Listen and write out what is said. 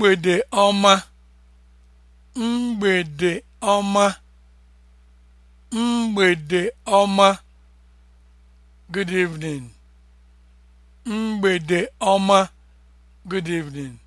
mgbede ọma mgbede ọma mgbede good evening